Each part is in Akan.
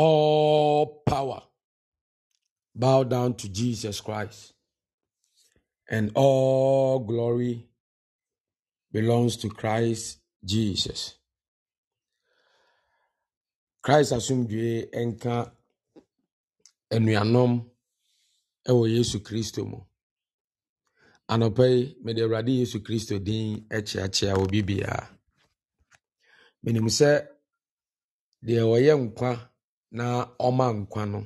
all power bow down to Jesus Christ. And all glory belongs to Christ Jesus. Christ asomdwe enka, anuanom ɛwɔ Yesu Kristo mu. Anɔpa yi, mede Awurade Yesu Kristo din akyeakyea obi biara. Menim sɛ deɛ ɔyɛ na ɔma na no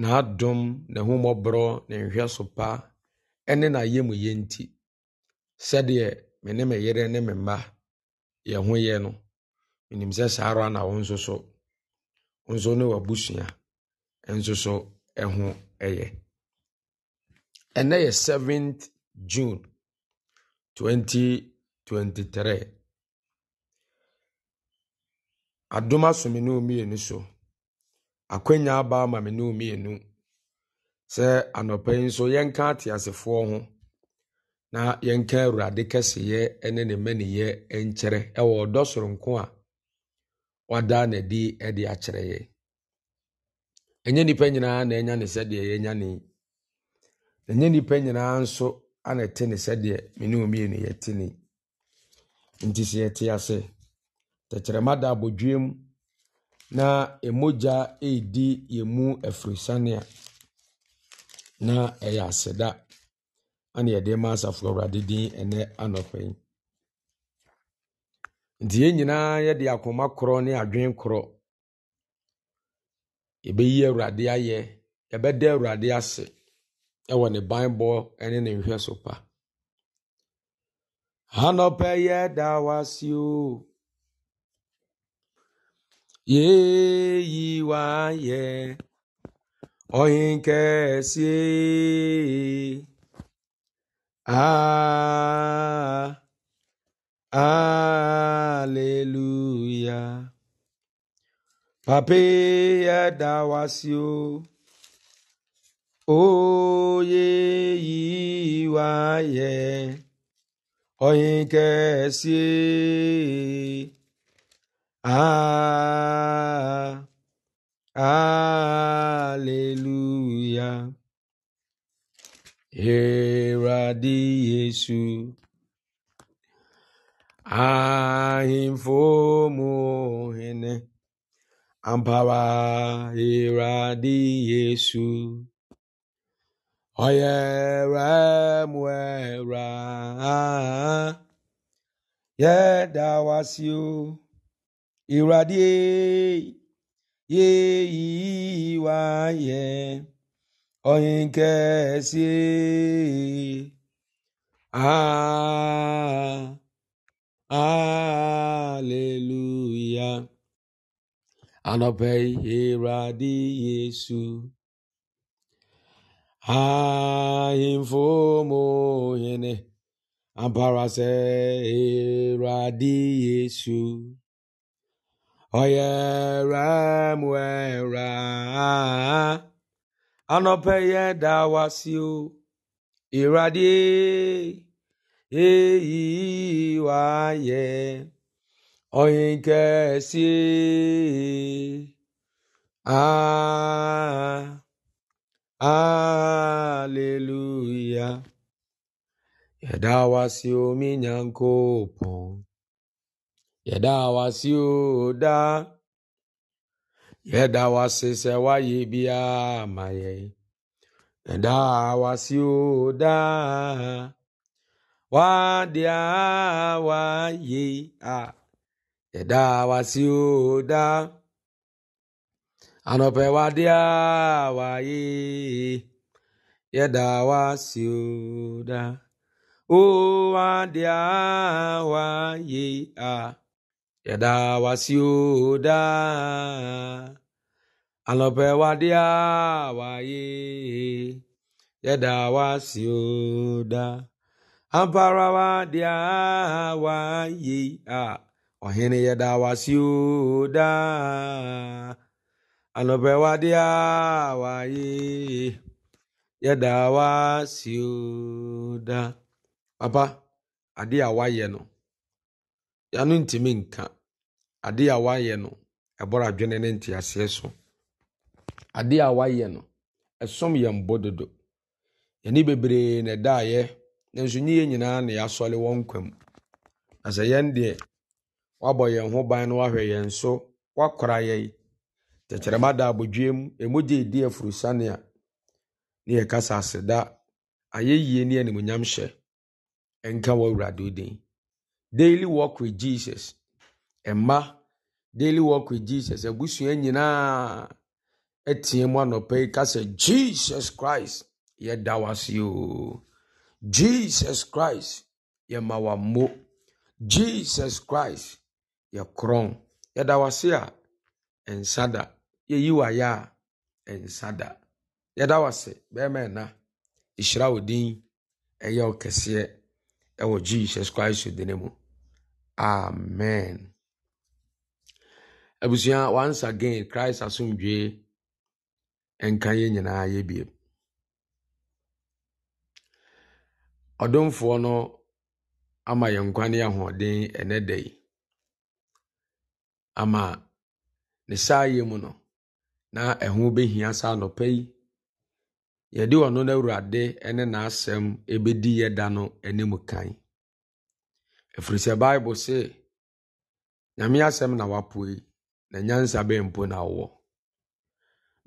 n'adom n'ahummɔborɔ na nhwɛsopa ne n'ayamyɛ nti sɛdeɛ me ne me yere ne me mma yɛn ho yɛ no menim sɛ saa ara na wo nso so wo nso ne w'abusua nso so ho yɛ ɛnɛ yɛ 7th june 2023 adom asome ne ɔmmienu so akwannya aba ama me ne mmienu sɛ anɔpa yi nso yɛnka ateasefoɔ ho na yɛnka awurade kɛseyɛ ne ne mmaniyɛ nkyerɛ ɛwɔ ɔdɔ soronko a wada n'adi de akyerɛ yɛ ɛnyɛ nnipa nyinaa na ɛnya ne sɛdeɛ yɛnya ne ɛnyɛ nnipa nyinaa nso ana ɛte ne sɛdeɛ me ne mmienu yɛte ne nti sɛ yɛte ase tɛkyerɛma da abɔdwiem na mogya redi yɛn mu afirisania na ɛyɛ aseda ɛna yɛde ma asafo awurade din ɛnɛ anɔpɛ yi nti yɛn nyinaa yɛde akoma korɔ ne adwene korɔ yɛbɛyi awurade ayɛ yɛbɛda awurade ase ɛwɔ ne banbɔ ɛne ne nhwɛ so pa anɔpɛ yɛ da si o. Ye, ye, wa yeyiwaye oyinkesi ah hallelujah ya da pape yadawasio oyeyiwaye oyinkesi Ah, Alleluia. Herade Yesu. Ahimfo muhene. Ampara Herade Yesu. da muera. si o ìwúradì yé ìwà yẹ ọyìn kẹsí aleluya anọpẹ ìwúradì yéṣu ahìnfòmòhìnì àbárasẹ ìwúradì yéṣu. ọ̀yẹ̀rẹ̀ mu a anọpẹ̀yẹ dá wa sí o ìradì èyí wá yẹ ọ̀yìn kẹsí aleluya yẹ̀dá wa yɛda wase o daa yɛda wase sɛ wayɛ biara ma yɛn yɛda wase o daa wadeɛ a wayɛ a yɛda wase o daa anɔpɛ wadeɛ a wayɛ yɛda wase o daa o wadeɛ a wayɛ a yɛda wasio daa anɔpɛ wadea waye yɛda wasio daa ampara wadea waye a ɔhene yɛda wasio daa anɔpɛ wadea waye yɛda wasio daa papa adeɛ a wayɛ no yɛano ntumi nka ade a wayɛ no ɛbɔrɔ adwene ne nteaseɛ so ade a wayɛ no ɛsom yɛn bɔ dodo yɛni bebree na ɛdaeɛ nanso nyɛ nyinaa na yɛasɔle wɔn kwam na sɛ yɛn deɛ wabɔ yɛn ho ban no wahwɛ yɛn so wakora yi tɛkyerɛma da abodwe mu emu gye edi afurusane a ne yɛkasa aseda ayɛyie ne animonyam hyɛ ɛnka wɔ awurade din daily walk with jesus mma daily walk with jesus abusua nyinaa teɛ mu anɔpa yi ka sɛ jesus christ yɛda wase o jesus christ yɛma mo. jesus christ yɛkorɔn yɛda wase a ɛnsa da yɛyi wayɛ a ɛnsa da yɛda wase bɛrima ɛna ɛhyira wo din ɛyɛ ɔkɛseɛ ɛwɔ jesus christ din mu amen abusua once again christ asomdwee nka yɛn nyinaa yɛ biem ɔdomfoɔ no ama yɛn nkwa ne ahoɔden ɛnɛ da yi ama ne saa yɛ mu no na ɛho bɛhia saa nɔpɛ yi yɛde ɔno no awurade ne n'asɛm ɛbɛdi yɛ da no anim kan ɛfiri sɛ bible se nyame asɛm na yi na nyansa bɛn mpo na wowɔ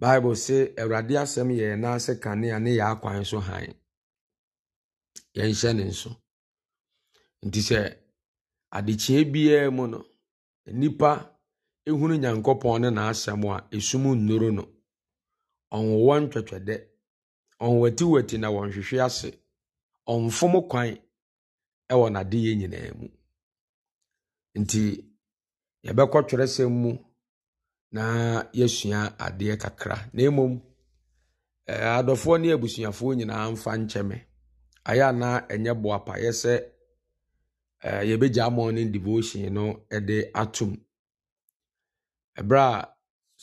bible se awurade asɛm yɛ yɛn ase kanea ne yɛ akwan so han yɛnhyɛ ne nso nti sɛ adekyeɛ biara mu no nnipa ehunu nyankopɔn ne n'asɛm a esum nnuru no ɔnwowɔ ntwɛtwɛdɛ ɔnwatiwati na wɔnhwehwe ase ɔnfom kwan ɛwɔ n'adeyɛ nyinaa mu nti yɛbɛkɔ twerɛsɛm mu na yɛsua adeɛ kakra na mmom eh, adɔfoɔ ne abusuafoɔ nyinaa mfa nkyɛme ayɛ anaa ɛnyɛ boapa yɛ sɛ eh, yɛbɛgya morning devotion no de atom ɛberɛ a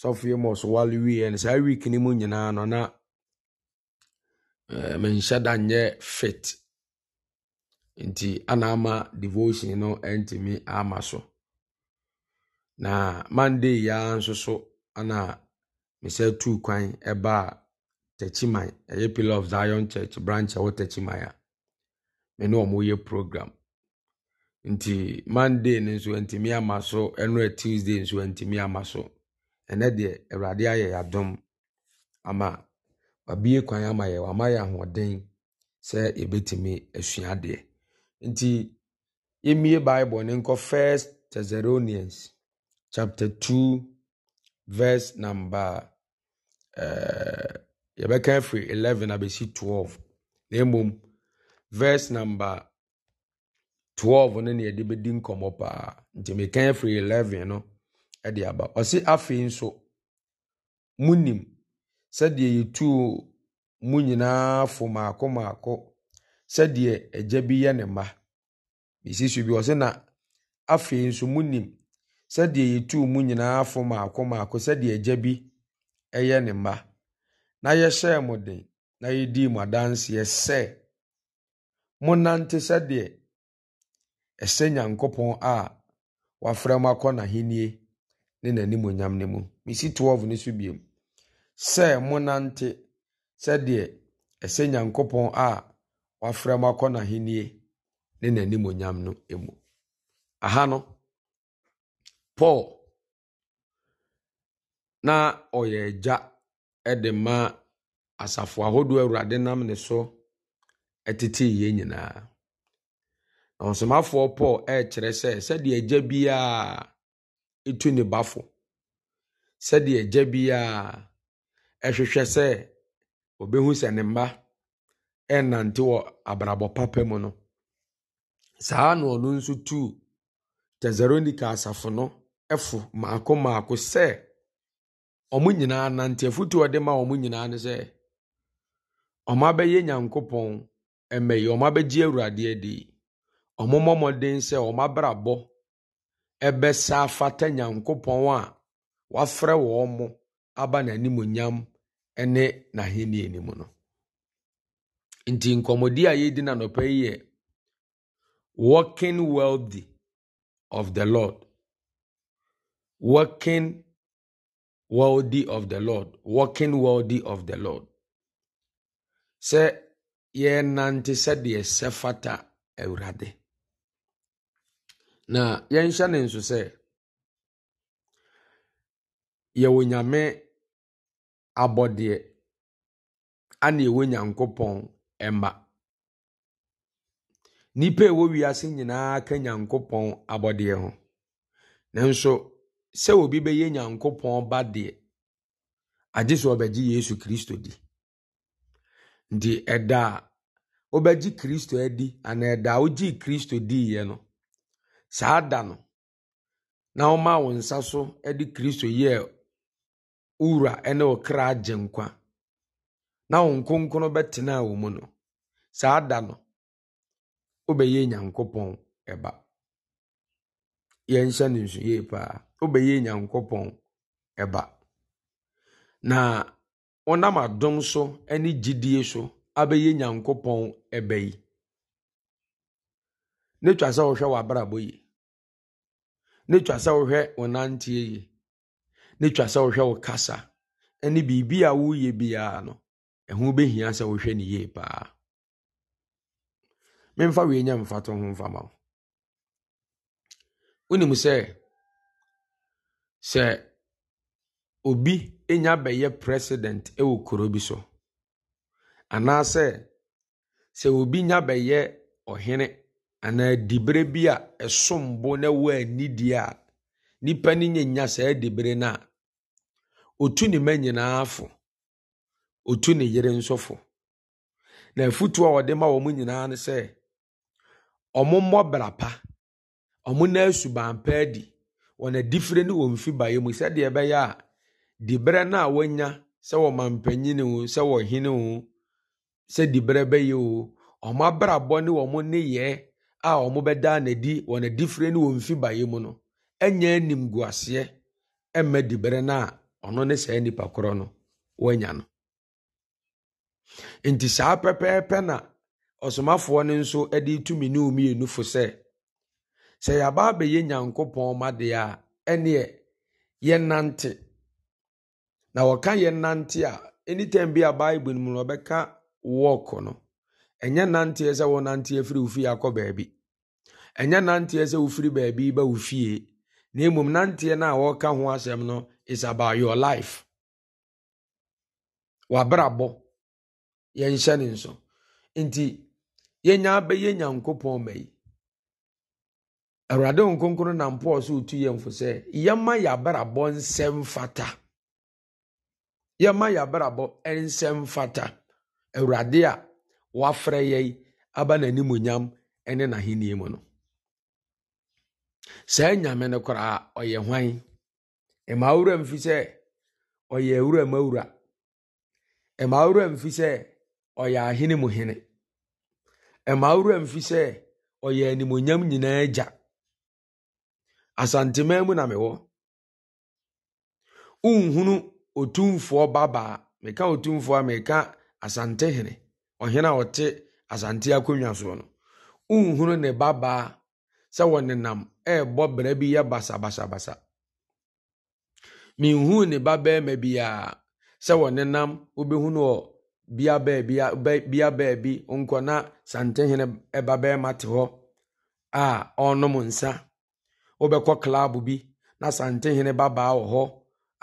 sɔfoɔ mɔ so wale wieɛ no saa week no mu nyinaa no na eh, menhyɛ da nyɛ fit nti ana ama devotion no ntumi ama so na monday ya nso so ana mesɛ tuu kwan a takyiman ɛyɛ pillar of zion church branch a ɛwɔ takyiman a me ne ɔmo yɛ program nti monday nso ntumi ama so ɛno tuesday nso ntumi ama so ɛnɛ deɛ awurade ayɛ ama wabie kwan ama yɛ wama yɛ ahoɔden sɛ yɛbɛtumi asua adeɛ nti yɛmmie bible ne nkɔ first thessalonians chapter 2 verse number uh, yɛbɛka afiri 11 abɛsi 12 na mmom verse number 12 no ne yɛde bɛdi nkɔmmɔ paa nti meka afiri 11 no de aba ɔse afei nso munim sɛdeɛ yɛtuu mu nyinaa fo maako maako sɛdeɛ ɛgya bi yɛ ne mma bɛsi so bi ɔse na afei nso mu munim sɛdeɛ yɛtuu mu nyinaa afo maako maako sɛdeɛ ɛgya bi ɛyɛ ne mma na yɛhyɛɛ mo den na yɛdii mo adanseɛ sɛ monante sɛdeɛ ɛsɛ nyankopɔn a wafrɛ mo akɔ n'ahennie ne n'animonyam no mu mesi 12 no so biom sɛ monante sɛdeɛ ɛsɛ nyankopɔn a wafrɛ mu akɔ n'ahennie ne n'animonyam no mu aha no paul na ɔyɛ agya de ma asafo ahodoɔ awurade nam ne so tetee yie nyinaa na ɔsomafoɔ paul ɛrekyerɛ sɛ sɛdeɛ agya biara etu ne bafo sɛdeɛ agya biara ɛhwehwɛ sɛ ɔbɛhu sɛ ne mma ɛnante wɔ abrabɔ papa mu no saa na ɔno nso tu tesaronika asafo no ɛfo mako mako sɛ ɔmo nyinaa nante afutu ɔde ma ɔmo nyinaa no sɛ ɔmo abɛyɛ nyankopɔn ɛmɛ yi ɔmo abɛgye awurade adi ɔmo mmɔmɔden sɛ ɔmo abrabɔ ɛbɛsa afata nyankopɔn a wafrɛ wɔn mo aba n'animonyam ɛne n'ahenni anim no. nti nkɔmmɔdi a yɛredi n'anɔpa yi yɛ working wealthy of the lord working wealthy of the lord working wealthy of the lord sɛ yɛnante sɛdeɛ sɛ fata awurade na yɛnhyɛ ne nso sɛ yɛwɔ nyame abɔdeɛ ana ɛwɔ nyankopɔn mma nnipa ɛwɔ wiase nyinaa ka nyankopɔn abɔdeɛ ho nanso sɛ obi bɛyɛ nyankopɔn ba deɛ agye sɛ ɔbɛgye yesu kristo di nti ɛda a wobɛgye kristo adi anaa ɛda a wogyee kristo diiɛ no saa da no na womaa wo nsa so de kristo yɛɛ wowura ne wo kra agye nkwa na wo nkonkron bɛtenaa wɔ mu no saa da no wobɛyɛ nyankopɔn ɛba yɛnhyɛ no nso yie paa wobɛyɛ nyankopɔn ɛba na wonam adom so ne gyidie so abɛyɛ nyankopɔn ɛba yi ne twa sɛ wohwɛ w'abrabɔ yi ne twa sɛ wohwɛ wo nanteɛ yi ne twa sɛ wohwɛ wo kasa ne biribi a woyɛ ɛho bɛhia sɛ wohwɛ ne yie paa memfa wei nya mfato ho ma wo wonim sɛ sɛ obi ɛnya bɛyɛ president ɛwɔ kuro bi so anaasɛ sɛ obi nya bɛyɛ ɔhene anaa dibere bi a ɛsom bo na ɛwɔ anidie a nipa no nya saa dibere no a otu ne ma nyinaa afo otu ne yere nsɔfo na afutuo a ɔde ma wɔn nyinaa ne sɛ ɔmommɔ bra pa ɔmo na suban pa adi wɔn adifire ne wɔn fi baeɛ mu sɛdeɛ ɛbɛyɛ a diberɛ no a wɔanya sɛ wɔma mpanyin o sɛ wɔhene o sɛ diberɛ bɛyɛ o ɔmo abrabɔ ne wɔn nneyɛɛ a ɔmo bɛda n'adi wɔn adifire ne wɔn fi baeɛ mu no ɛnyɛ animguaseɛ ɛmma diberɛ no na ɔno ne saa nipa korɔ no wɔanya no nti saa pɛpɛɛpɛ na ɔsomafoɔ no nso de tumi ne mmienu fo sɛ sɛ yɛaba abɛyɛ nyankopɔn ma deɛ a ɛneɛ yɛnante na wɔka yɛnante a anytime bi a bible mu no ɔbɛka wɔk no ɛnyɛ nanteɛ sɛ wɔnanteɛ firi wo fie akɔ baabi ɛnyɛ nanteɛ sɛ wofiri baabi ba wo fie na mmom nanteɛ no a wɔreka ho asɛm no is about your life wabrabɔ yɛnhyɛ ne nso nti yɛnya bɛyɛ nyankopɔn ma yi awurade nkonkron na mpoɔ so otu yɛn fo sɛ yɛma yɛabrabɔ nsɛm fata yɛma yɛabrabɔ nsɛm fata awurade a wafrɛ yɛi aba n'animonyam ne n'ahenni mu no saa nyame no koraa ɔyɛ hwan ɛma awura mfi sɛ ɔyɛ awura ma awura ɛma awura mfi sɛ ɔyɛ ahene mu hene ɛma awura mfi sɛ ɔyɛ animonyam nyinaa agya asanteman mu na mewɔ nhunu otumfoɔ babaa meka otumfoɔ a meka asantehene ɔhene a ɔte asante akonnwa soɔ no nhunu ne babaa sɛ wɔnenam ɛrebɔ bra bi yɛ basabasabasa menhuu ne babarima biara sɛ wɔnenam bia beebi baabi baabi nkɔ na santehene ba bɛrima te hɔ a ɔrenom nsa wobɛkɔ klaabo bi na santehene babaa wɔ hɔ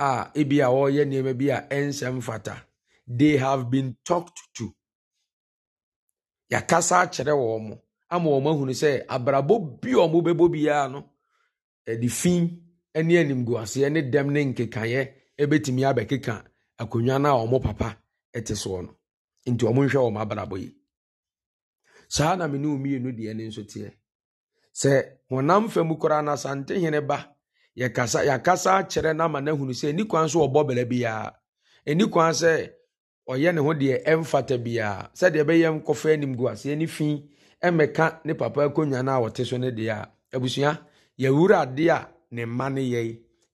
a ebi a ɔreyɛ nneɛma bi a ɛnhyɛ mfata they have been talked to y'akasa akyerɛ wɔn mo ama wɔn ahunu sɛ abrabɔ bi a bɛbɔ biara no ɛde fi ne animguaseɛ ne dɛm ne nkekaeɛ ebetumi abɛkeka akonnwa no a wɔn papa ɛte soɔ no nti ɔmo nhwɛ wɔn abrabɔ yi saa na mene mmienu deɛ ne nso teɛ sɛ koraa na santehene ba yɛkasa yɛakasa akyerɛ na ama na ehunu sɛ kwan so ɔbɔ bela biara ɛni kwan sɛ ɔyɛ ne ho deɛ ɛmfata biara sɛdeɛ ɛbɛyɛ nkɔfa anim gu aseɛ ne fi ɛmɛka ne papa akonnwa no a so ne deɛ abusua yɛwura adeɛ a ne mma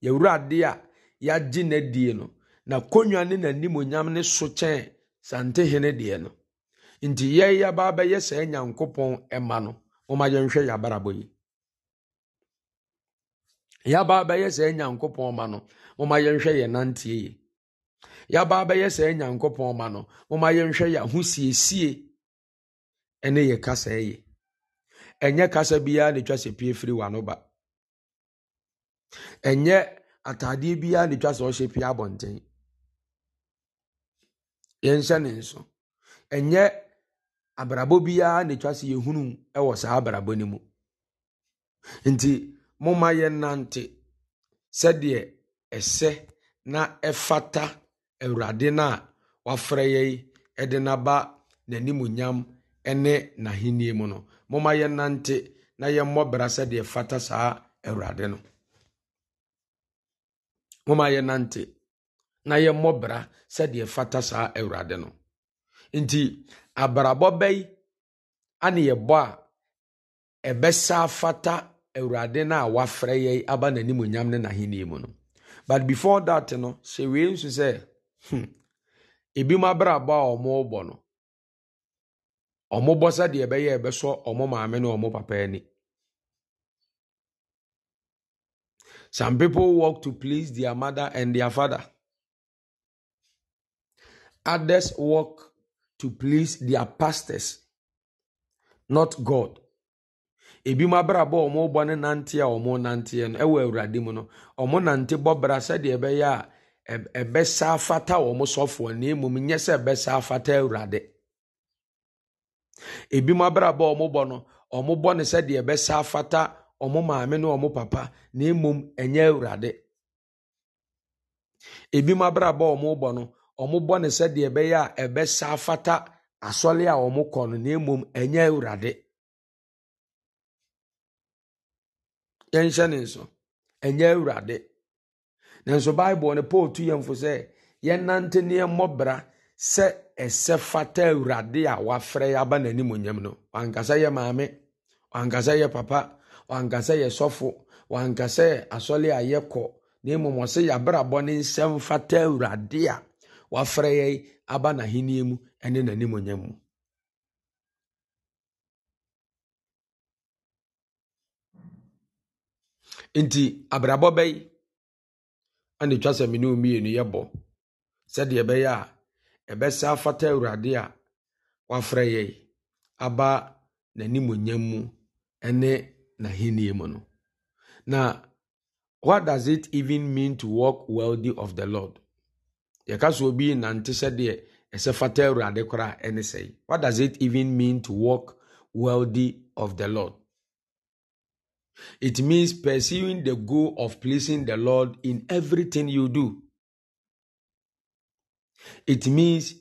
yɛwura adeɛ a na konwa ne n'animonyam ne so kyɛn santehene deɛ no nti yɛn yaba abɛyɛ sɛ nyankopɔn ma no wɔn yɛnhwɛ yabarabɔ yi yaba abɛyɛ sɛ nyankopɔn ma no wɔn yɛnhwɛ yɛn nanteɛ yi yaba abɛyɛ sɛ nyankopɔn ma no wɔn yɛnhwɛ yɛn ahosiesie ɛne yɛ kasa yi ɛnyɛ kasa biara na etwa sɛ pie firi wano ba ɛnyɛ ataadeɛ biara na etwa sɛ ɔhyɛ pie abɔnten. yɛnhyɛ ne nso ɛnyɛ abrabɔ biara na etwa sɛ yɛhunu wɔ saa abrabɔ no mu nti momma nante sɛdeɛ ɛsɛ na ɛfata awurade no a wafrɛ yi de n'aba n'animuonyam ne n'ahenni mu no momma nante na yɛmmɔ bra sɛdeɛ fata saa awurade no momma nante. na yɛmmɔ bra sɛdeɛ fata saa awurade no nti abrabɔ bɛyi ane yɛbɔ a ɛbɛsa fata awurade no a wafrɛ yɛn aba n'animonyam ne n'ahenni mu no but before that no hyɛ wei nso sɛ hmm, ebi mu abrabɔ a wɔrebɔ no wɔbɔ sɛdeɛ ɛbɛyɛ ɛbɛsɔ wɔn maame ne wɔn papa ani some people work to please their mother and their father. Others work to please their pastors, not God. ebi mu abrabọ ọmụ wɔn bɔ ne nante a wɔn nante no wɔ awurade mu no wɔn nante bɔ bra sɛdeɛ ɛbɛyɛ a ɛbɛsa afata wɔn sɔfoɔ na mmom nyɛ sɛ ɛbɛsa afata awurade ebi mu abrabọ ọmụ bọ nọ ọmụ bọ bɔ ne sɛdeɛ ɛbɛsa afata ọmụ maame na ọmụ papa na enye ɛnyɛ awurade ebi mu abrabọ ọmụ bọ nọ. wɔbɔ no sɛdeɛ ɛbɛyɛ a ɛbɛsa afata asɔre a wɔkɔ no na mmom ɛnyɛ awurade yɛnhyɛ ne nso ɛnyɛ awurade nanso bible no paul tu yɛmfo sɛ yɛnante ne yɛmmɔ bra sɛ ɛsɛ fata awurade a wafrɛ yɛ aba n'anim onyam no wankasa yɛ maame wankasa yɛ papa wankasa yɛ sɔfo wankasa yɛ asɔre a yɛkɔ na mmom ɔsɛ yɛabrabɔ ne nsɛm fata awurade a wafurahia aba na hini yemu ne n'animonyam mu nti abrabɔ bɛyi ɛna etwa sɛ mmienu mmienu yɛ bɔ sɛdeɛ ɛbɛyɛ a ɛbɛsɛ afata awurade a wafrɛ yɛn aba n'animonyam mu ne n'ahenni mu no na what does it even mean to walk worthy of the lord yɛka obi nante sɛdeɛ ɛsɛ fata awurade koraa ɛne what does it even mean to walk worthy of the lord it means pursuing the goal of pleasing the lord in everything you do it means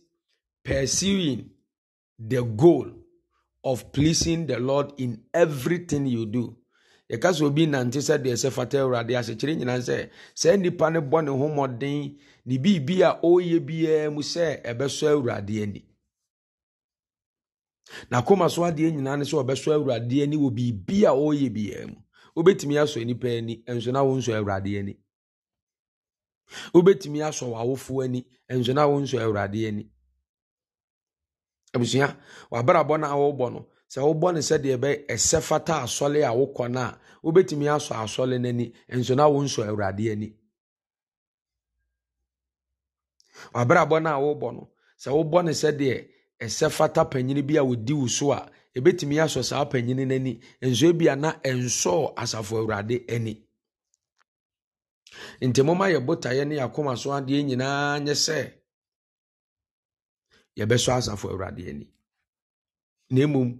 pursuing the goal of pleasing the lord in everything you do yɛka obi nante sɛ deɛ sɛ fata awurade ahyekyere nyina sɛ saa nnipa no bɔ ne ho mmɔden ne biribi a ɔreyɛ biara mu sɛ ɛbɛsɔ awurade ani n'akoma so adeɛ nyinaa ne sɛ ɔbɛsɔ awurade ani wɔ biribi a ɔreyɛ biara mu wobɛtumi asɔ nipa ani nso na wɔnsɔ awurade ani wobɛtumi asɔ w'awofoɔ ani nso na wɔnsɔ awurade ani abusua w'abrabɔ no a wɔrebɔ no sɛ wobɔ no sɛdeɛ bɛ ɛsɛ fata asɔle a wokɔ no a wobɛtumi asɔ asɔle no ani nso na awurade ani wabrabɔ no a wobɔ no sɛ wobɔ sɛdeɛ ɛsɛ fata panyini bi a wo so a asɔ saa panyini nso ebi na ɛnsɔɔ asafo awurade ani nti yɛ botaeɛ ne yɛakoma so adeɛ nyinaa nyɛ sɛ yɛbɛsɔ asafo awurade ani na mmom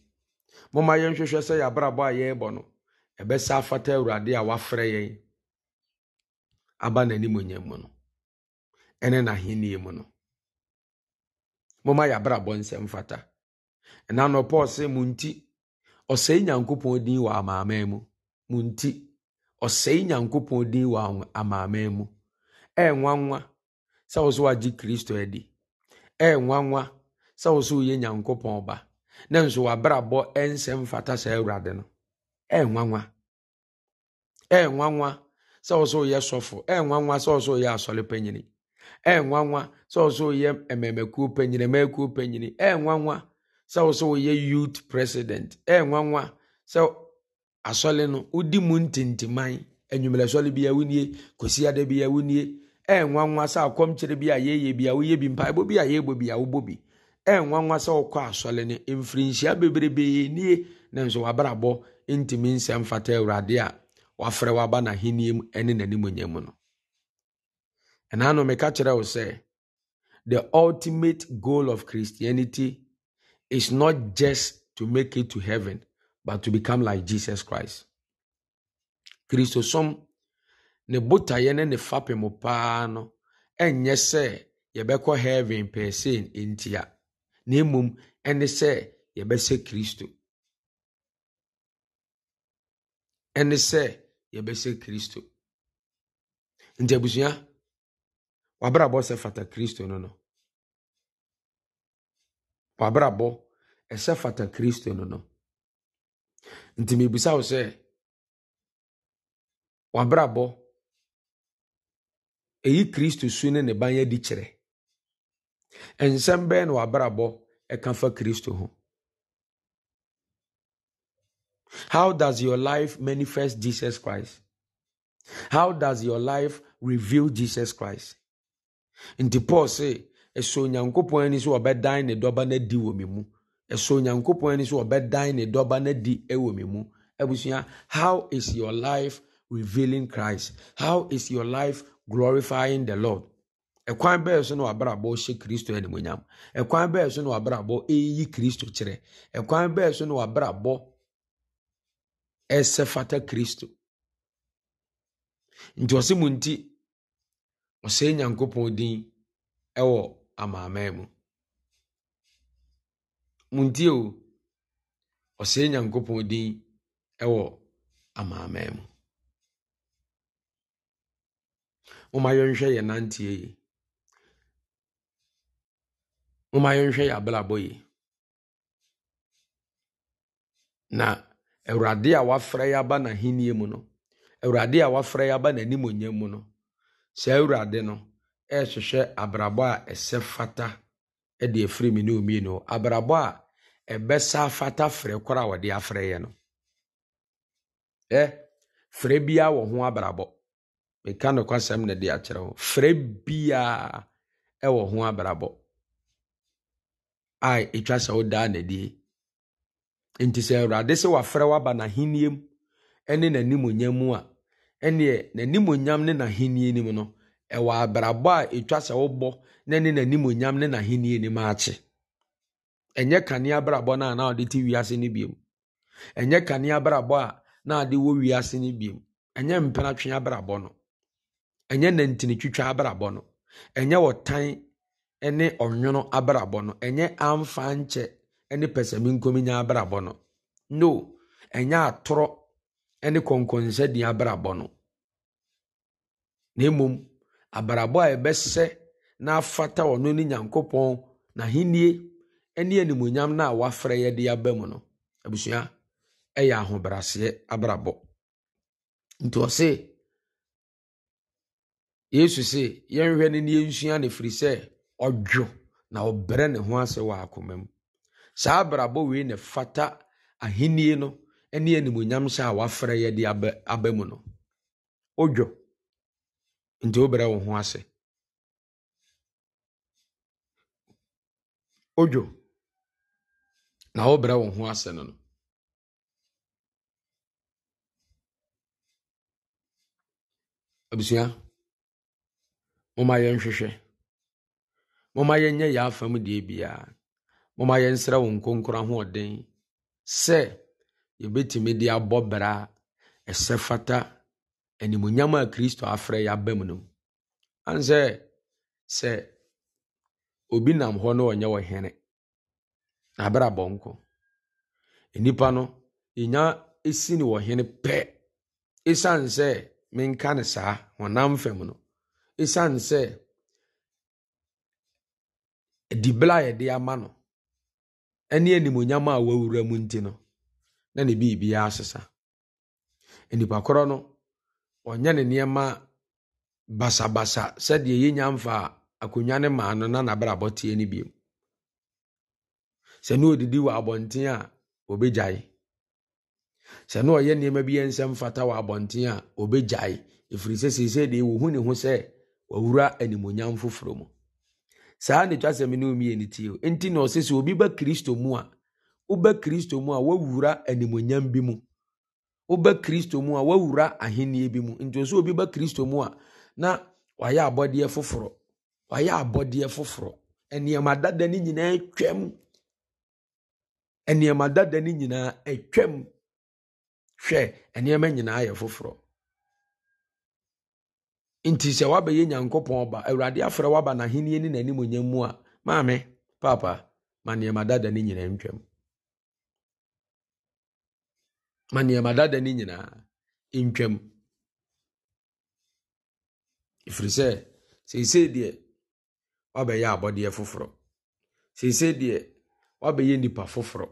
mụma momma yɛnhwehwɛ sɛ abụọ a yɛrebɔ no ɛbɛsa afata awurade a wafrɛ yɛn aba n'animonyam mu no ɛne n'ahenni mu no momma yɛabrabɔ nsɛm fata ɛna no paul sɛ mo nti ɔsɛe nyankopɔn din wɔ amaaman mu mo nti ɔsɛe nyankopɔn din wɔ amaaman mu ɛyɛ nwanwa sɛ wo so wagye kristo adi ɛyɛ nwanwa sɛ wo so woyɛ nyankopɔn ba na nanso wabrabɔ ɛnsɛ mfata saa awurade no ɛnwanwa ɛnwanwa sɛ ɔsɛ ɔyɛ sɔfo ɛnwanwa sɛ ɔsɛ ɔyɛ asɔre panyini ɛnwanwa sɛ ɔsɛ ɔyɛ mmɛmɛkuo panyini mmɛkuo panyini ɛnwanwa sɛ ɔsɛ ɔyɛ youth president ɛnwanwa sɛ asɔre no wodi mu ntintiman enyimerɛsɔre bi a wunie kɔsi ada bi a wunie ɛnwanwa sɛ akɔmkyerɛ bi a yɛyɛ bi a woyɛ bi mpaebɔ bi a yɛbɔ bi a wobɔ bi. ɛnwanwa sɛ ɔkɔ asɔre no mfirinhyia bebrebee nie na nso wabrabɔ ntumi nsɛm fata awurade a wafrɛ waba n'ahenni mu ne n'animonyam mu no ɛnaano meka kyerɛ wo sɛ the ultimate goal of christianity is not just to make it to heaven but to become like jesus christ kristosom ne botaeɛ ne ne fapem paa no ɛnyɛ sɛ yɛbɛkɔ heaven pɛɛ sei ntia na mmom ɛne sɛ yɛbɛsɛ kristo ɛne sɛ yɛbɛsɛ kristo nti abusua wabrabɔ sɛ fata kristo no no wabrabɔ ɛsɛ fata kristo no no nti mebisa wo sɛ wabrabɔ ɛyi kristo su ne ne ban di kyerɛ nsɛm bɛyɛ na wabrabɔ ɛka fa kristo ho how does your life manifest jesus christ how does your life reveal jesus christ nti paul se ɛsɛ onyankopɔn ani sɛ wɔbɛdan ne dɔba no adi wɔ me mu ɛsɛ onyankopɔn ani sɛ wɔbɛdan ne dɔba no adi wɔ me mu abusua how is your life revealing christ how is your life glorifying the lord ɛkwan bɛɛ so na wabrabɔ hyɛ kristo animonyam ɛkwan bɛɛ so na wabrabɔ eyi kristo kyerɛ ɛkwan bɛɛ so na wabrabɔ ɛsɛ fata kristo nti ɔse mu nti ɔsɛe nyankopɔn din ɛwɔ amaaman mu mu nti o ɔsɛe nyankopɔn din ɛwɔ amaaman mu moma yɛnhwɛ yɛ nanteɛ yi moma yɛnhwɛ yɛ abrabɔ yi na awurade a wafrɛ yɛ aba n'ahennie mu no awurade a wafrɛ yɛ aba onye mu no saa awurade no ɛrehwehwɛ abrabɔ a ɛsɛ e fata e de efiri me ne omienu abrabɔ a ɛbɛsa e fata frɛ koro a wɔde afrɛ yɛ no ɛ frɛ biara wɔ ho abrabɔ meka nokwasɛm ne de akyerɛ ho frɛ biara wɔ ho abrabɔ a ɛtwa sɛ wodaa n'adie nti sɛ awurade sɛ wafrɛ waba n'ahennie mu ne n'animonyam mu a ɛneɛ n'animonyam ne n'ahennie no mu no ɛwɔ abrabɔ a ɛtwa sɛ wobɔ na ne n'animonyam ne n'ahennie no mu akye ɛnyɛ kanea abrabɔ no a na ɔde te ase no biom ɛnyɛ kanea abrabɔ a na ade wɔ wiase no biom ɛnyɛ mpenatwe abrabɔ no ɛnyɛ nantinitwitwa abrabɔ no ɛnyɛ wɔtan ne ɔnwono abrabɔ no ɛnyɛ amfa nkyɛ ne pɛsɛmenkominya abrabɔ no no ɛnyɛ atorɔ ne kɔnkɔnsɛdin abrabɔ no na mmom abrabɔ a ɛbɛsɛ n'afata ɔno ne nyankopɔn n'ahennie ne animonyam no a wafrɛ yɛde aba mu no abusua ɛyɛ ahobraseɛ abrabɔ nti ɔse yesu se yɛnhwɛ no ne yɛnsua no ɛfiri sɛ Ọdwo na ɔbrɛ ne ho ase wɔ akoma mu saa abrabɔ wei na fata ahennie no ne animonyam hyɛ a wafrɛ yɛ de aba mu no wodwo nti wobrɛ wo ho ase wodwo na wobrɛ wo ho ase no no abusua momma yɛnhwehwɛ momma yɛnyɛ yɛ afam deɛ biara momma yɛnsrɛ wo nkonkoro ahoɔden sɛ yɛbɛtumi de abɔ bra ɛsɛ fata animonyam a kristo afrɛ yɛ aba mu no ane sɛ obi nam hɔ na ɔnyɛ wɔ hene na abɛrɛ nnipa no ɛnya ɛsi ne wɔ hene pɛ ɛsiane sɛ menka ne saa honam fam no ɛsiane sɛ adibere a yɛde ama no ne animonyam a wawura mu nti no na ne biribiara asesa nnipa korɔ no ɔnyɛ ne nneɛma basabasa sɛdeɛ yɛnya mfa akonnwa ne maa no na n'abrabɔ teɛ no bio sɛ ne ɔdidi wɔ abɔnten a ɔbɛgyae sɛ ne ɔyɛ nneɛma bi yɛ nsɛm fata wɔ abɔnten a ɔbɛgyae ɛfiri sɛ seesei deɛ wɔhu ne ho sɛ wawura animonyam foforɔ mu saa ne twasɛm ne omienu tie nti na ɔsɛ sɛ obi ba kristo mu a woba kristo mu a wawura animonyam bi mu woba kristo mu a wawura ahennie bi mu nti ɔsɛ obi ba kristo mu a na wayɛ abɔdeɛ foforɔ wayɛ abɔdeɛ foforɔ nneɛma dada ne nyinaa twam nneɛma dada ne nyinaa twam hwɛ nneɛma nyinaa yɛ foforɔ nti sɛ wabɛyɛ nyankopɔn ba awurade afrɛ waba n'ahenni ne n'animonyam mu a maame papa ma nneɛma dada ne nyinaa ntwam ma nneɛma dada ne nyinaa ntwam ɛfiri sɛ seesei deɛ wabɛyɛ abɔdeɛ foforɔ seesei deɛ wabɛyɛ nnipa foforɔ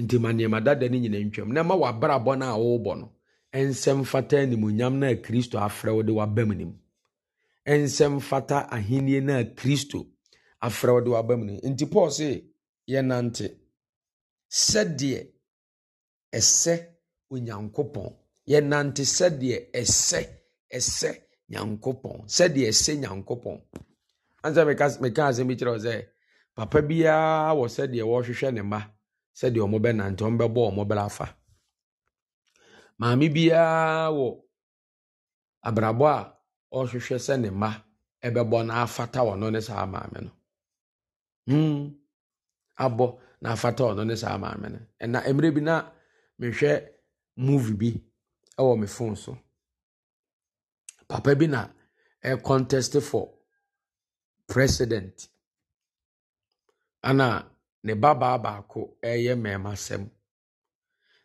nti ma nneɛma dada ne nyinaa ntwam na ma bɔ no a wɔrebɔ no nsɛm fata animonyam no kristo afrɛ wo de waba mu nim nsɛm fata ahenni kristo afrɛ wo de waba mu nim nti paul se yɛnante sɛdeɛ ɛsɛ onyankopɔn yɛnante sɛdeɛ ɛsɛ ɛsɛ nyankopɔn sɛdeɛ ɛsɛ nyankopɔn ansa meka asɛm bi kyerɛ wo sɛ papa biara wɔ sɛdeɛ wɔrehwehwɛ ne mma sɛdeɛ ɔmo bɛnante ɔmo bɛbɔ ɔmo bɛra afa maame biara wɔ abrabɔ a ɔrehwehwɛ sɛ ne mma ɛbɛbɔ na afata ɔno ne saa maame no hmm abɔ na afata ɔno ne saa maame no ɛna mmerɛ bi na mehwɛ movie bi ɛwɔ me phone so papa bi na ɛcontest for president ana ne babaa baako ɛyɛ mmarima sɛm.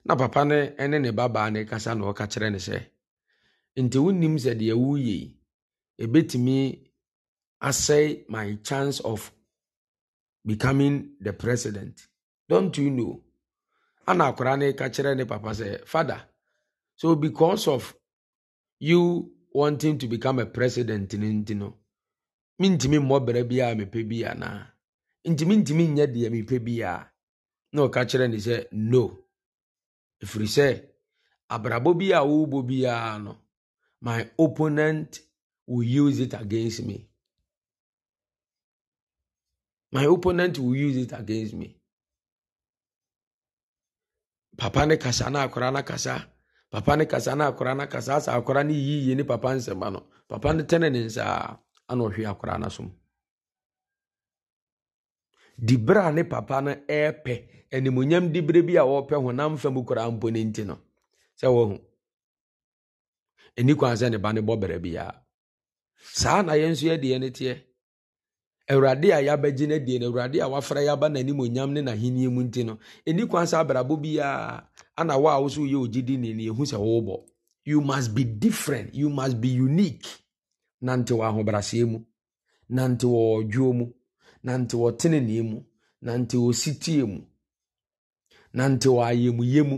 na papa no ne ne babaa no kasa na ɔka kyerɛ no sɛ nti wonim sɛ deɛ woyɛ yi ɛbɛtumi asɛe my chance of becoming the president don't you know ana akwara no ka kyerɛ ne papa sɛ father so because of you wanting to become a president no nti no mentumi mmɔ berɛ biaa mepɛ bi anaa ntimi ntimi nyɛ deɛ mepɛ biaa na ɔka kyerɛ ne sɛ no ɛfiri sɛ abrabɔ bi a wɔrebɔ biara no my opponent will use it against me my opponent will use it against me papa ne kasa na akora na kasa papa ne kasa na akora na kasa asa akora ne yiyie ne papa nsɛm ano papa ne tɛne ne nsa ana ɔhwe akora no so mu di bere a ne papa no ɛrepɛ animonyam di bere bi a wɔrepɛ honam fam koraa mpo ne nti no sɛ wɔhu ɛni kwan sɛ ne ba ne bɔ bere biara saa na yɛn nso yɛdeɛ ne teɛ awurade a yɛabɛgye no adie no awurade a wafra yɛaba n'animonyam ne n'ahenniɛ mu nti no ɛni kwan sɛ abrabɔ biara ana wo a wo so woyɛ ogyidi ne ne ɛhu sɛ wobɔ you must be different you must be unique nante wɔ ahobraseɛ mu nante wɔ ɔdwoo mu na nti wɔtenenee mu na nti wɔsitie mu na nti wɔayɛmuyɛ mu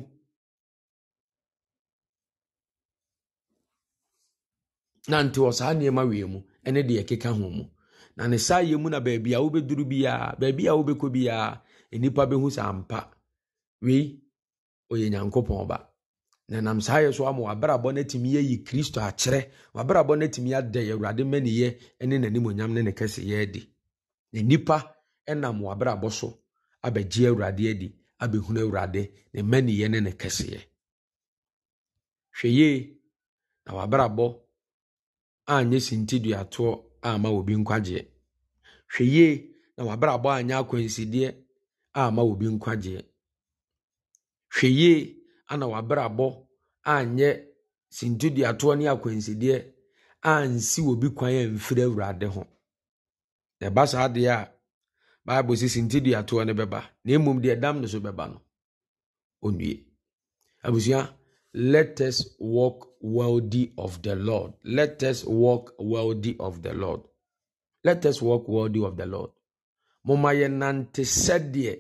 na nti wɔ saa nneɛma wie mu ne deɛ ɛkeka ho mu na ne saa yɛ mu na baabi a wobɛduru biaa baabi a wobɛkɔ biaa nnipa bɛhu saa mpa wei ɔyɛ nyankopɔn ba na nam saa yɛ so ama wabrabɔ no atumi yɛyi kristo akyerɛ wabrabɔ no atumi ada awurade mmaniyɛ ne n'animonyam ne ne kɛseyɛ adi nnipa nam w'abrabɔ so abegye awurade adi abɛhunu awurade ne mmaniyɛ ne ne kɛseɛ hwɛ na w'abrabɔ anyɛ sintiduatoɔ ama obi nkwagyeɛ hwɛ na w'abrabɔ anyɛ akwansideɛ ama obi nkwagyeɛ hwɛ yie ana w'abrabɔ anyɛ sintiduatoɔ ne akwansideɛ ansi obi kwan amfiri awurade ho ɛba saa adeɛ a bible sisi nti dua toɔ no bɛba na mmom deɛ dam no so bɛba no onue abusua let us walk worthy of the lord let us walk worthy of the lord let us walk worthy of the lord moma nante sɛdeɛ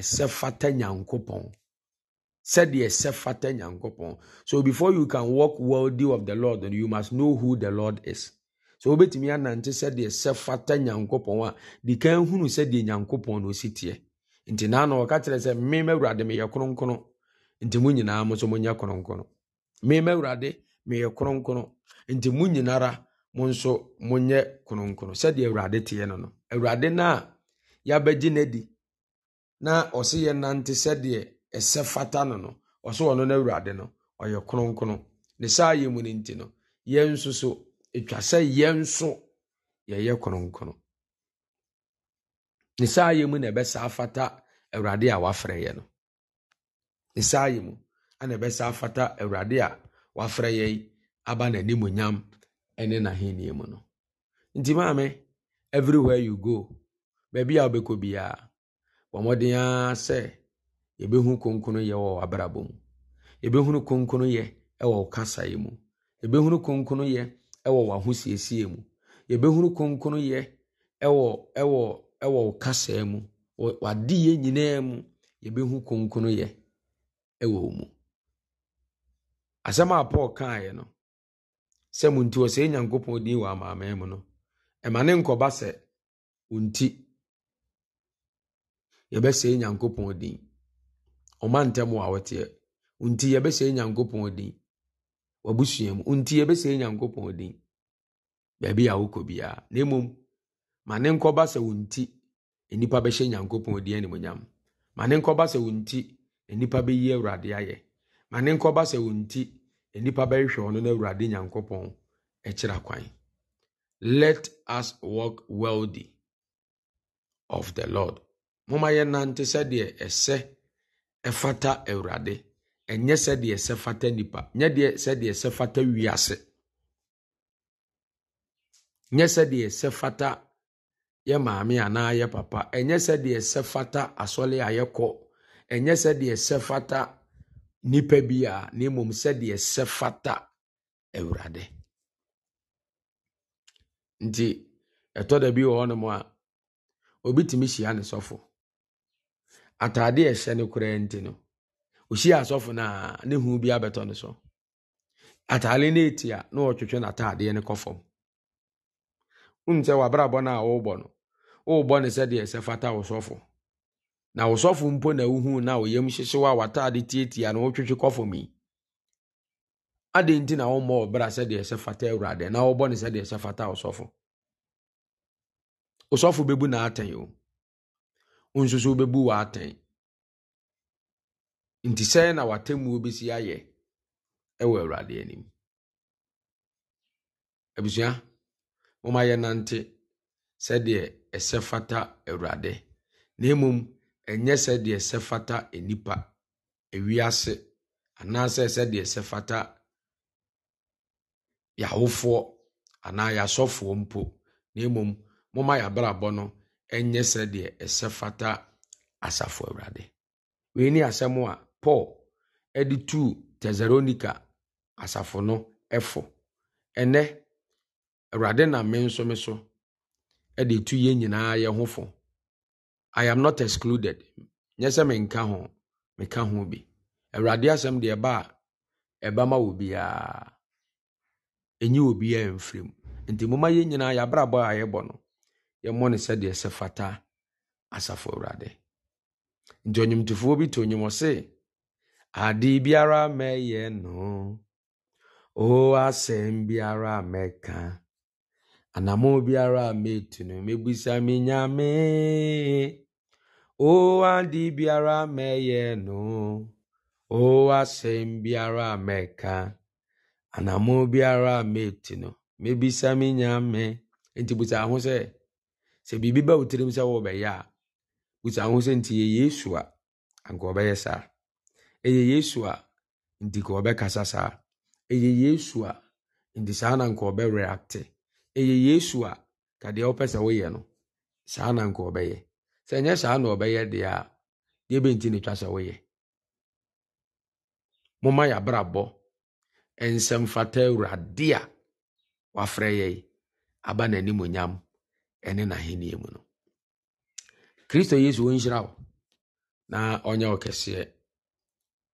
ɛsɛ fata nyankopɔn sɛdeɛ ɛsɛ fata nyankopɔn so before you can walk worthy of the lord you must know who the lord is sɛ wobɛtumi anante sɛdeɛ sɛ fata nyankopɔn a de kan hunu sɛdeɛ nyankopɔn na ɔsi teɛ nti naa na ɔka kyerɛ sɛ me ma awurade meyɛ kronkrono nti mu nyinaa mo nso monyɛ kronkrono me ma awurade meyɛ kronkrono nti mu nyinara mo nso monyɛ kronkrono sɛdeɛ awurade teɛ no no awurade no a yɛabɛgye no adi na ɔse yɛ nante sɛdeɛ ɛsɛ fata no no ɔso ɔno no awurade no ɔyɛ kronkrono ne saa yɛ mu no nti no yɛn nso so ɛtwa sɛ yɛn nso yɛyɛ kronkron ne saa yɛ mu na saa afata awurade a wafrɛ yɛ no ne saa yɛ mu ana saa afata awurade a wafrɛ yɛ aba n'animuonyam ne n'ahenni mu no nti maame everywhere you go beebi a wobɛkɔ biara bɔ mmɔden ara sɛ yɛbɛhu kronkron yɛ wɔ w'abrabɔ mu yɛbɛhunu kronkron yɛ wɔ wo kasaeɛ mu yɛbɛhunu kronkron yɛ wɔ w'ahosiesie mu yɛbɛhunu kronkronyɛ wɔ ɛwɔ ɛwɔ wo kasaa mu yɛ nyinaa mu yɛbɛhu kronkronyɛ wɔ wo mu asɛm a paul kaeɛ no sɛ mo nti ɔsɛe nyankopɔn din wɔ amaaman mu no ɛma ne nkɔba sɛ wo nti yɛbɛsɛe nyankopɔn din ɔma ntɛm wɔ a wɔteɛ wo nti yɛbɛsɛe nyankopɔn din wabusua mu nti yɛbɛsɛe nyankopɔn din baabi a wokɔ biara na mmom ma ne nkɔba sɛ wo nti nnipa bɛhyɛ nyankopɔn din animonyam ma ne nkɔba sɛ wo nti nnipa bɛyi awurade ayɛ ma ne nkɔba sɛ wo nti nnipa bɛhwehwɛ ɔno no awurade nyankopɔn ɛkyerɛ kwan let us walk worthy of the lord momma yɛnante sɛdeɛ ɛsɛ ɛfata awurade ɛnyɛ sɛdeɛ ɛsɛ fata nipa nyɛ deɛ sɛdeɛ ɛsɛ fata wiase nyɛ sɛdeɛ ɛsɛ fata yɛ maame anaa yɛ papa ɛnyɛ sɛdeɛ ɛsɛ fata asɔle a yɛkɔ ɛnyɛ sɛdeɛ ɛsɛ fata nipa bi a na mmom sɛdeɛ ɛsɛ fata awurade nti ɛtɔ da bi wɔ hɔnom a obi tumi hyia ne sɔfo a ɛhyɛ no koraa nti no ɔhyia asɔfo na ne bi abɛtɔ no so ataale no ɛti a na ɔtwetwe n'a no kɔ fam wonim sɛ wabrabɔ no a worebɔ no worebɔ no sɛdeɛ sɛ fata wo na wo sɔfo mpo na wohu na oyam hyehyew a tietia na wotwetwe kɔ yi adɛn nti na wommɔ ọbra bra sɛdeɛ sɛ fata awurade na wobɔ no sɛdeɛ sɛ fata wo sɔfo wo sɔfo bɛbu n'atɛn o wo nso so wobɛbu nti sɛn na watemmuo bɛsi ayɛ ɛwɔ awurade anim abusua momma yɛnante sɛdeɛ ɛsɛ fata awurade na mmom ɛnyɛ sɛdeɛ ɛsɛ fata nnipa ewiase anaasɛ sɛdeɛ ɛsɛ fata yɛawofoɔ anaa yɛasɔfoɔ mpo na mmom momma yɛabrabɔ no ɛnyɛ sɛdeɛ ɛsɛ fata asafo awurade wei ne asɛm a paul ɛde tu tesaronica asafo no ɛfo ɛnɛ awurade na me nso me so de tu yɛn nyinaa yɛ ho fo i am not excluded nyɛ sɛ menka ho meka ho bi awurade asɛm deɛ ɛba a ɛba ma wɔ biara ɛnyi wɔ biara mfiri mu nti moma yɛn nyinaa yɛabrabɔ a yɛbɔ no yɛmmɔ no sɛdeɛ sɛ fata asafo awurade nti ɔnwomtofoɔ bi to nnwom ɔse Adị biara meyenụ, o asem mbịara meka, anamụ biara metunu megbisa menyame. O adị biara meyenụ, o asem mbịara meka, anamụ biara metunu megbisa menyame. Nti busa ahụ sị, sị biribi ba m sị wọbɛyɛ a, busa ahụ sị nti yɛ Yesu a, nke anka ɔbɛyɛ saa. ɛyɛ yesu a nti ka ɔbɛkasa saa ɛyɛ yesu a nti saa na yesu a ka wopɛ sɛ woyɛ no saa na nka ɔbɛyɛ sɛ ɛnyɛ saa na ɔbɛyɛ deɛ a deɛ bɛnti ne twa sɛ woyɛ yɛabrabɔ nsɛmfata awurade a wafrɛ yɛi aba n'anim onyam n'ahenniɛ mu no kristo yesu wɔnhyira wo na ɔnyɛ wo kɛseɛ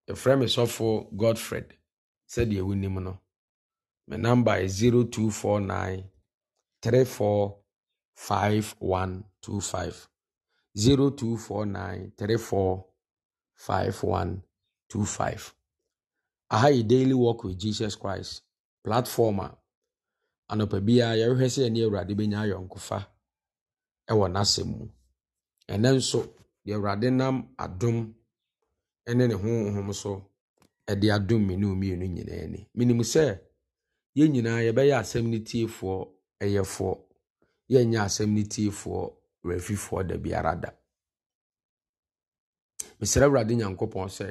yɛfrɛ me sɔfo godfred sɛdeɛ wonim no me number is 0249 345125 0249 345125 aha yɛ daily work with jesus christ platform a anɔpa biara yɛhwehwɛ sɛ ɛne awurade bɛnya ayɔnkofa ɛwɔ n'asɛm mu ɛnɛ nso deɛ awurade nam adum. ne ne honhom so de adom me ne mmienu nyinaa ani menim sɛ yɛn nyinaa yɛbɛyɛ asɛm no tiefoɔ ɛyɛfoɔ yɛnyɛ asɛm no tiefoɔ wɔafifoɔ da biara da mesrɛ awurade nyankopɔn sɛ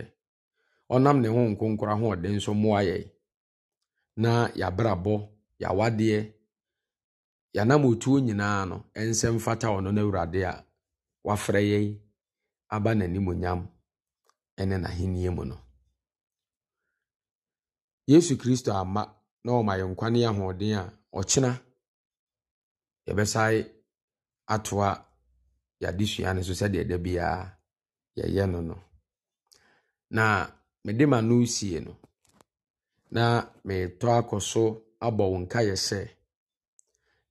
ɔnam ne ho nkonkora ho ɔden nso mmoa yɛn na yɛabrabɔ yɛawadeɛ yɛanam otuo nyinaa no ɛnsɛ mfata ɔno no awurade a wafrɛ yɛn aba n'animonyam ɛne n'ahenni mu no yesu kristo ama na ɔma yɛn nkwa ne ahoɔden a ɔkyena yɛbɛsae atoa yɛadesua no so sɛdeɛ da biara yɛyɛ no no na mede ma no sie no na metɔ akɔ so abɔ wo nkaeɛ sɛ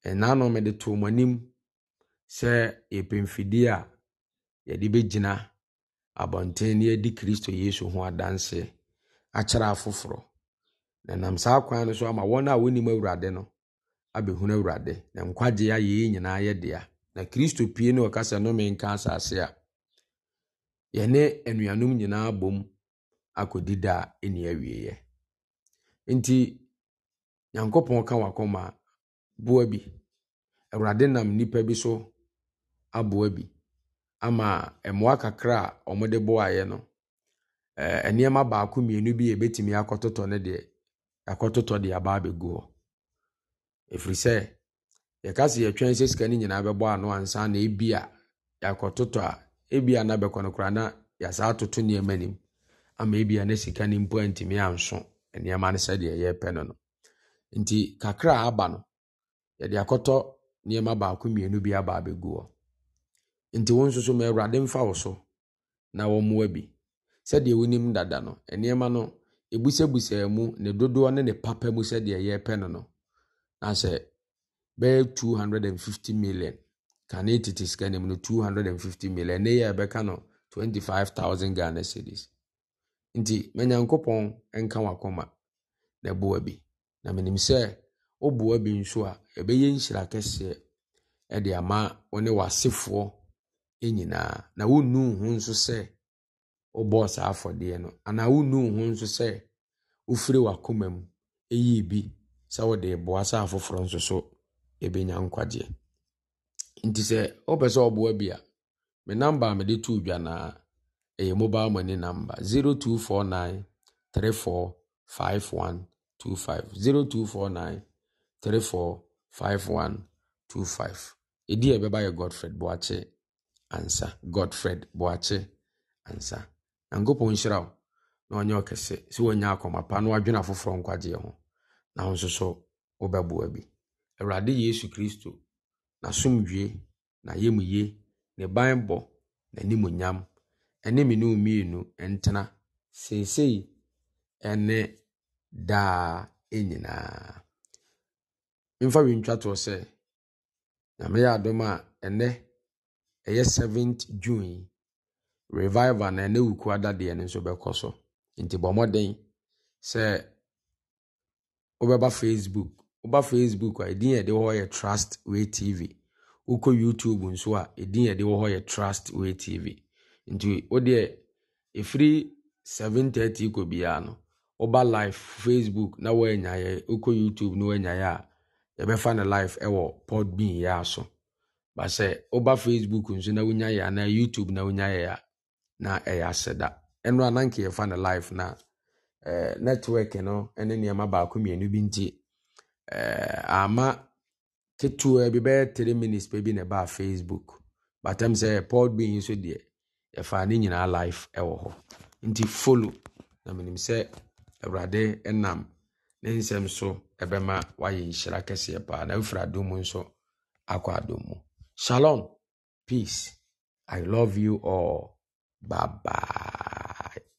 ɛnaa no mede too mo anim sɛ yɛpɛ mfidie a yɛde bɛgyina abɔnten ne adi kristo yesu ho adanse akyerɛ afoforɔ na nam saa kwan no so ama wɔn a wɔnim awurade no abɛhunu awurade na nkwagye ayɛ yɛ nyinaa yɛ dea na kristo pie ne ɔkasa nnome nka asase a yɛne anuanom nyinaa bom akɔdi da a ɛni awieeɛ nti nyankopɔn ka wakɔma boa bi awurade nam nnipa bi so aboa bi ama mmoa kakra a wɔde boaeɛ no, ɛɛ nneɛma baako mmienu bi a yɛbɛtumi akɔtotɔ ne deɛ, akɔtotɔ de aba abɛgu hɔ. Ɛfiri sɛ, yɛka sɛ yɛtwɛn sɛ sika no nyinaa bɛbɔ ano ansa na ebia yɛakɔtotɔ a, ebia na bɛkɔ no koraa na yɛasa atoto nneɛma nim ama ebia na sika no mpo antumi anso nneɛma no sɛdeɛ yɛrepɛ no no. Nti kakra a aba no, yɛde akɔtɔ nneɛma baako mmienu bi aba abɛgu hɔ. nti wo nsoso so ma awurade mfa wo so na wɔmmoa bi sɛdeɛ wonim dada no nneɛma no ebusabusa mu ne dodoɔ ne ne papa mu sɛdeɛ yɛrepɛ no no na sɛ bɛyɛ 250 million kane tete sika no mu no 250 million ne yɛ ɛbɛka no 25000 ghana cedis nti manyankopɔn nka wakoma na boa bi na menim sɛ woboa bi nso a ɛbɛyɛ nhyira kɛseɛ ɛde ama wo ne nyinaa na wonnu ho nso sɛ wobɔɔ saa afɔdeɛ no anaa wonnu ho nso sɛ wofiri w'akoma mu ɛyii bi sɛ wode boa sɛ afoforɔ nso so ɛbɛnya nkwagyeɛ nti sɛ wopɛ sɛ ɔboa bi a me namba a mede too dwanaa ɛyɛ e, mobile money number 0249 34 5125 0249 34 5125 ɛdi a ɛbɛba yɛ godfred boakye ansa godfred boakye ansa nyankopɔn nhyira wo na ɔnyɛ ɔkɛse si wanya akọma pa na wadwene afoforɔ nkwagyeɛ ho na ho nso so wobɛboa bi awurade yesu kristo n'asomdwie n'ayamye ne banbɔ n'animuonyam ɛne me ne mmienu ntena seesei ɛne daa nyinaa mfa wi ntwatoɔ sɛ nyame yɛ adom a ɛnɛ ɛyɛ 7th june revival na ɛnɛ wuku adadeɛ no nso bɛkɔ so nti bɔ mmɔden sɛ wobɛba facebook woba facebook a ɛdin yɛde hɔ yɛ trust way tv wokɔ youtube nso a ɛdin yɛde hɔ yɛ trust way tv nti wodeɛ ɛfiri 730 kɔ biara no woba live facebook na woanyaeɛ wokɔ youtube na woanyaeɛ a yɛbɛfa no live ɛwɔ podbean yɛ so ba sɛ woba facebook nso na wonya yɛ anaa youtube na wonya yɛ a na ɛyɛ aseda ɛno a nanka yɛfa no live na eh, network no ne nneɛma baako mmienu bi nti eh, ama ketewa bi bɛyɛ 3 minutes pɛ bi na ɛbaa facebook batam sɛ pod bi nso deɛ yɛfaa ne nyinaa live ɛwɔ hɔ nti follow na menim sɛ awurade nam ne nsɛm so ɛbɛma wayɛ nhyira kɛseɛ paa na wofiri adom nso akɔ adom mu Shalom. Peace. I love you all. Bye bye.